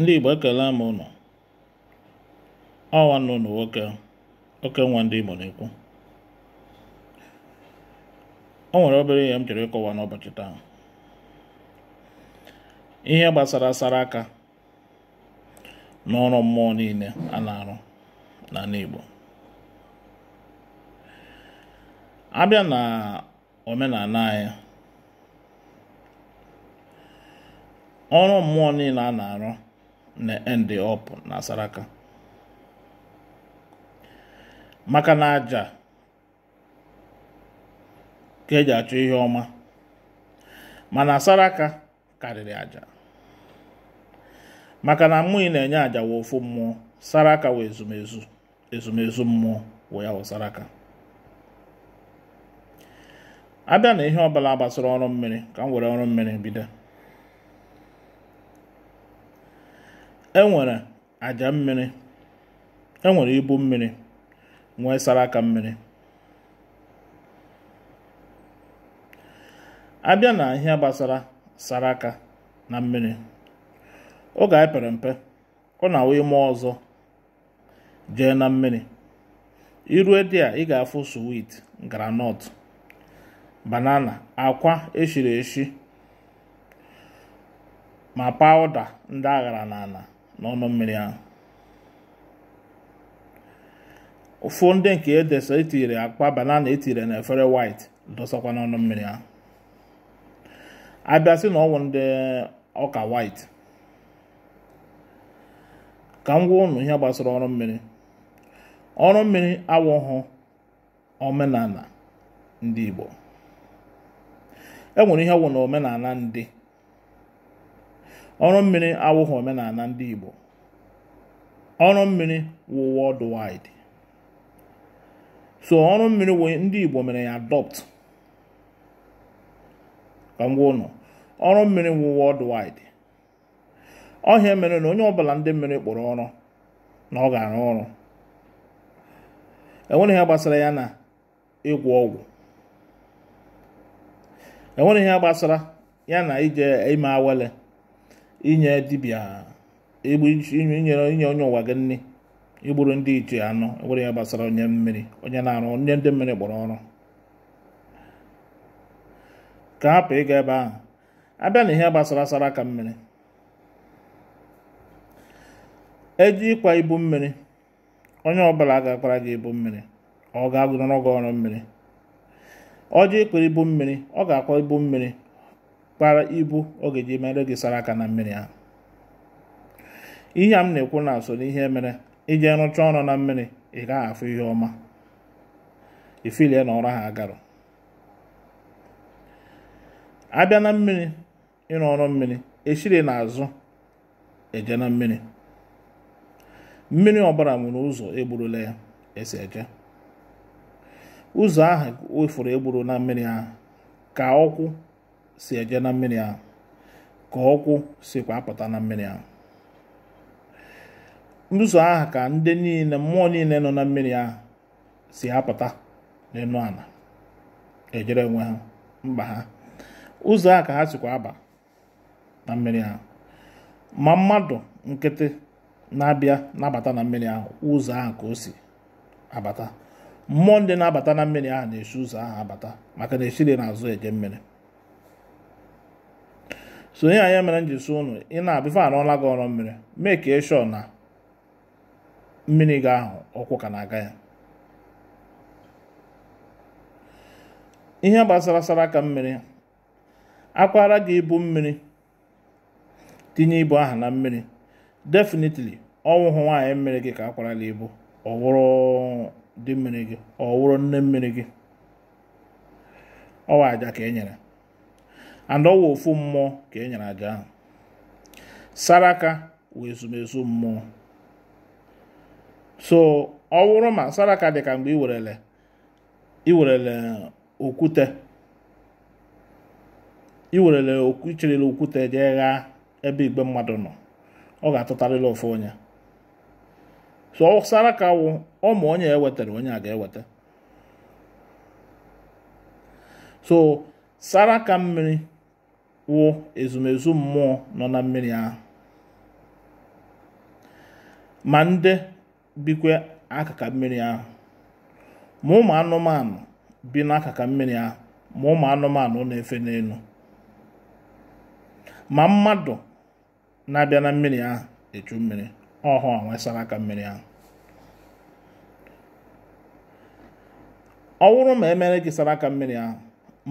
ndị Igbo ekele m ụnụ ọwa nụ nwoke oke nwa ndị Igbo na-ekwu o nwere obere ihe m chọrọ ịkọwa n'ụbọchị taa ihe gbasara asara aka n'ọrụ mmụọ niile a na-arụ n'ala Igbo abịa na omenala anyị ọrụ mmụọ niile a na-arụ na-end up na saraka maka na aja ka eji achọ ihe ọma mana saraka karịrị aja maka na mmụọ na-enye aja wee ofu mmụọ Saraka wee ezumezu ezumezu mmụọ wee ya wụ Saraka abịa na ihe ọbụla gbasara ọrụ mmiri ka m were ọrụ mmiri bido enwere àjà mmiri enwere ibu mmiri nwee saraka mmiri abịa na ihe gbasara sara na mmiri oge anyị pere mpe ọ na-awụ ime ọzọ jee na mmiri irue dị a ị ga-afụ suwit granọt banana akwa eshiri eshi ma pawụda ndị aghara n'ala n'ọnụ mmiri ahụ ụfụ ndị nke edesa etinyere akpa banana etinyere na efere white dosakwa n'ọnụ mmiri ahụ abịasị na ọnwụ ndị ọka white ka m gwa ụnụ ihe gbasara ọrụ mmiri ọrụ mmiri awụghụ omenala ndị Igbo e nwere ihe wụ na omenala ndị ọrụ mmiri awụghị omenala ndị Igbo ọrụ mmiri wụ worldwide so ọrụ mmiri wụ ndị Igbo mere ya adopt ka m gwa ụnụ ọrụ mmiri wụ worldwide ọhịa mere na onye ọbụla ndị mmiri kpọrọ ọrụ na ọ ga-arụ ọrụ enwere ihe gbasara ya na ịgwọ ọgwụ enwere ihe gbasara ya na ije ime awele inye dibịa inye onye ụwa gị nne igburu ndị ichie anụ egburu ya gbasara onye mmiri onye na-arụ onye ndị mmiri gbọrọ ọrụ ka hapụ ịga ebe ahụ abịa na ihe gbasara asara aka mmiri eji ịkwa ibu mmiri onye ọbụla ga gị ibu mmiri ọ ga-agụnọrọ gị ọrụ mmiri ọjị ịkwara ibu mmiri ọ ga-akwa ibu mmiri kpara ibu ọ ga-eji mere gị sara aka na mmiri ahụ ihe a m na-ekwu na so ihe mere iji rụchaa ọrụ na mmiri ị gaghị afụ ihe ọma ifilie na ọrụ ha agarụ abịa na mmiri ịrụ ọrụ mmiri eshiri na azụ eje na mmiri mmiri ọbara nwere ụzọ egburula ya esi eje ụzọ ahụ wefuru egburu na mmiri ahụ ka ọkwụ si eje na mmiri ahụ ka ọkwụ sikwa apụta na mmiri ahụ ụzọ ahụ ka ndị niile mmụọ niile nọ na mmiri ahụ si apụta n'elu ala ejere onwe ha mba ha ụzọ a ka ha sikwa aba na mmiri ahụ ma mmadụ nkịtị na-abịa na-abata na mmiri ahụ ụzọ ahụ ka o si abata mmụọ ndị na-abata na mmiri ahụ na-esi ụzọ ahụ abata maka na esiri n'azụ eje mmiri sonye anyị mere m ji ị na-abịa arụọla gị ọrụ mmiri mee ka ịshọ e na mmiri gị ahụ ọkwụ ka na-aga ya ihe gbasara sara aka mmiri akwara gị ibu mmiri tinye ibu aha na mmiri definitely ọnwụhụ nwaanyị mmiri gị ka akwarala ibu ọ wụrụ dị mmiri gị ọ wụrụ nne mmiri gị ọwa aja ka e nyere and ọwa ofu mmụọ ka e nyere aja ahụ saraka wụ ezumezu mmụọ so ọ wụrụ ma saraka dị ka mgbe iwerele iwerele okwute iwerele icherele okwute jee ghaa ebe igbe mmadụ nọ ọ ga-atụtarịrị ofu onye so saraka wụ ọ ma onye ewetara onye a ga-eweta so saraka mmiri wụ ezumezu mmụọ nọ na mmiri ahụ ma ndị bikwe akaka mmiri ahụ ma ụmụ anụmanụ bi n'akaka mmiri ahụ ma ụmụ anụmanụ na-efe n'elu ma mmadụ na-abịa na mmiri ahụ echu mmiri ọhụ nwesara aka mmiri ahụ ọ wụrụ ma emere gị sara aka mmiri ahụ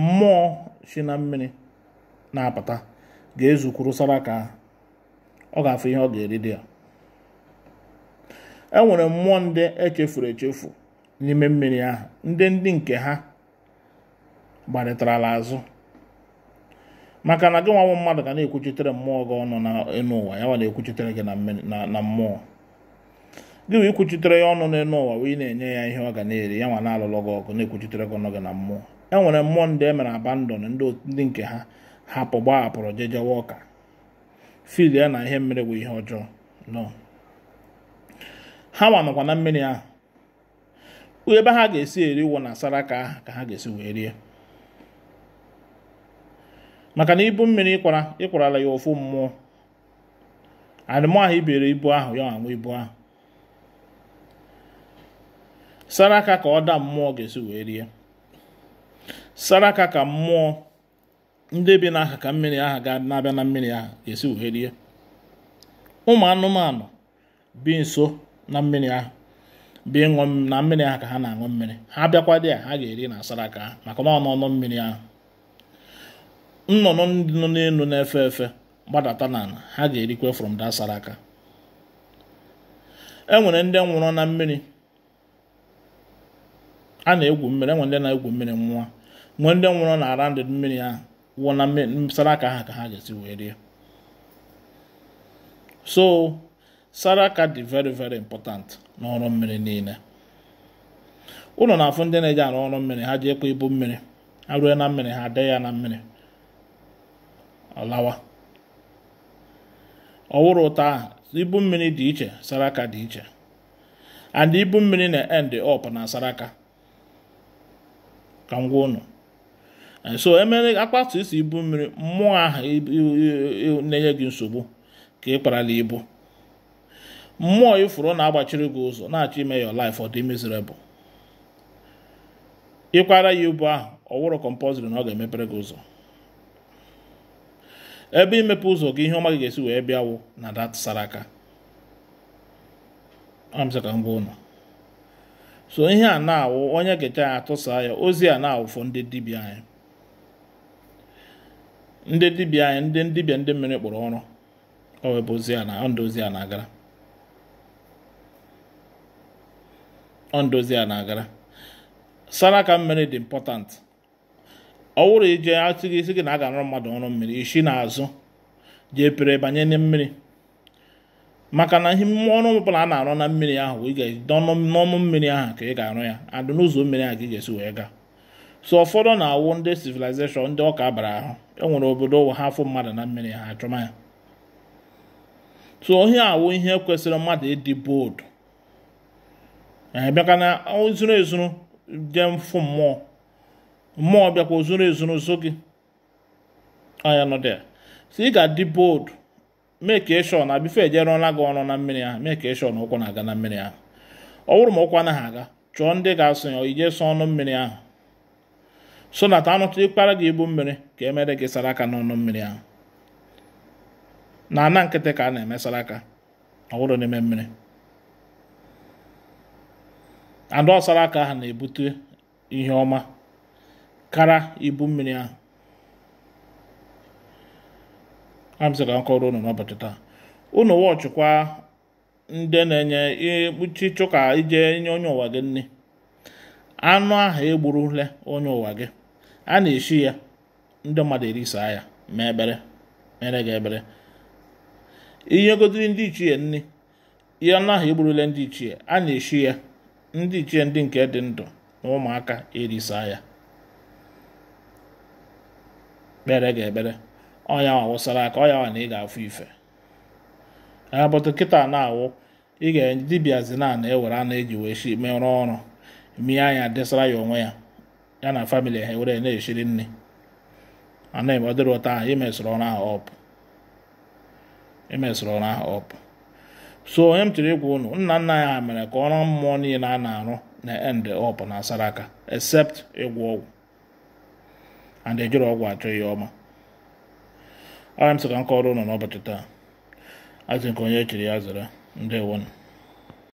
mmụọ si na mmiri na-apụta ga-ezu saraka ka ọ ga-afụ ihe ọ ga-eri dị ya e nwere mmụọ ndị echefuru echefu n'ime mmiri ahụ ndị ndị nke ha gbarịtarala azụ maka na gị nwa mmadụ ga na-ekwuchitere mmụọ gị ọnụ n'elu ụwa ya na-ekwuchitere gị na mmụọ gị wee ikwuchitere ya ọnụ n'elu ụwa wee na-enye ya ihe ọ ga na-eri ya nwa na-alụlụ gị ọgụ na-ekwuchitere gị ọnụ gị na mmụọ e nwere mmụọ ndị e mere abandon ndị nke ha hapụ gbahapụrụ jejewa ọka fil ya na ihe mmiri bụ ihe ọjọọ nọ ha nwanọkwa na mmiri ahụ ebe ha ga-esi eri na saraka ahụ ka ha ga-esi wee rie maka na ibu mmiri ịkwara ịkwarala ya ofu mmụọ arịmụ ahụ ibere ibu ahụ ya anwụ ibu ahụ saraka ka ọ daa mmụọ ga-esi wee rie saraka ka mmụọ ndị bi n'aha ka mmiri aha ga na-abịa na mmiri aha ga-esi wee ụmụ anụmanụ bi nso na mmiri ahụ bi ịṅụ na mmiri ahụ ka ha na-aṅụ mmiri ha bịakwa dị a ha ga-eri na asara aka ha maka na ọnụ mmiri ahụ nnụnụ ndị nọ n'elu na-efe efe gbadata n'ala ha ga-erikwe from that sara aka e nwere ndị nwụrụ na mmiri a na-egwu mmiri enwere ndị na-egwu mmiri nwa nwee ndị nwụrụ na ara ndị mmiri ahụ wụọ na saraka ha ka ha ga-esi wee rie so saraka dị very very important n'ọrụ mmiri niile ụlọ na-afụ ndị na-eji arụ ọrụ mmiri ha ji ekwe ibu mmiri ha rue na mmiri ha dee ya na mmiri ọlawa ọwụrụ ụta ahụ ibu mmiri dị iche saraka dị iche and ibu mmiri na end up na saraka ka m gwa ụnụ so emere akpatu isi ibu mmiri mmụọ ahụ na-enye gị nsogbu ka ị kparala ibu mmụọ ifuru na-agbachiri gị ụzọ na-achọ ime your lif ọ dị miserable ịkwara ya ibu ahụ ọ wụrụ na ọ ga-emepere gị ụzọ ebe imepe ụzọ gị ihe ọma gị ga-esi wee bịawụ na dat saraka amsaka ngwa ụnọ so ihe a na-awụ onye gecha ya atụsa ya ozi a na awụfọ ndị dibịa anyị ndị dibịa anyị ndị dibịa ndị mmiri kpụrụ ọrụ ọ webụ ozi a na ozi a na-agara ọ a na-agara mmiri dị important ọ wụrụ ije atụghị isi gị na a ga-arụ mmadụ ọrụ mmiri na azụ jee pere banye na mmiri maka na ihe ọrụ ọbụla a na-arụ na mmiri ahụ ị ga n'ọnụ mmiri ahụ ka ị ga-arụ ya adụ n'ụzọ mmiri ahụ ka ị ga-esi wee gaa so ụfọdụ na-awụ ndị civilization ndị ọka bara ahụ enwere obodo ụwa ha mmadụ na mmiri ha ya so ohe awụ ihe kwesịrị mmadụ ịdị boodu bịaka na ozuru ezuru jee mfụ mmụọ mmụọ bịakwa ozuru ezuru zo gị anya nọ dị so ị ga-adị boodu mee ka ịshọ na bife ejerụọla gị ọrụ na mmiri ahụ mee ka ịshọ na ụkwụ na-aga na mmiri ahụ ọ bụrụ ma ụkwụ anaghị aga chọọ ndị ga-asụ ya ije sọ ọnụ mmiri ahụ sonata anụtụ ịkpara gị ibu mmiri ka emere gị sara aka n'ọnụ mmiri ahụ na ana nkịtị ka a na-eme saraka ọ bụrụ n'ime mmiri ada ọsara aka ahụ na-ebute ihe ọma kara ibu mmiri ahụ ka nkọrọ unu n'ụbọchị taa unu wọchịkwa ndị na-enye ikpuchi chụka ije nye onye ụwa gị nne anụ ahụ egburule onye ụwa gị a na-eshi ya ndị mmadụ erisaa ya ma ekpere mere gị ebere ihe godiri ndị ichie nri ihe anụ ahụ egburule ndị ichie a na-eshi ya ndị ichie ndị nke dị ndụ na ụmụaka erisaa ya kpere gị ekpere ọnya wụsara aka ọya nwa na ị ga-afụ ife abụtụ kịta na-awụ ị ga-dibịazi na na ewere anụ eji wee shi merụọ ọrụ mie anya desara ya onwe ya ya na famili ha were na-eshiri nne anaghị m ọ dịrị ụta ahụ imesịrị ọrụ ahụ ọpụ imesịrị ọrụ ahụ ọpụ so onye m chọrọ ikwu unu nna nna ya mere ka ọrụ mmụọ niile a na-arụ na end ọpụ na saraka except ịgwọ ọgwụ and ejiri ọgwụ achọ ya ọma ọrịa m sị ka m kọrọ n'ụbọchị taa azụ nke onye echiri ya zara ndewonu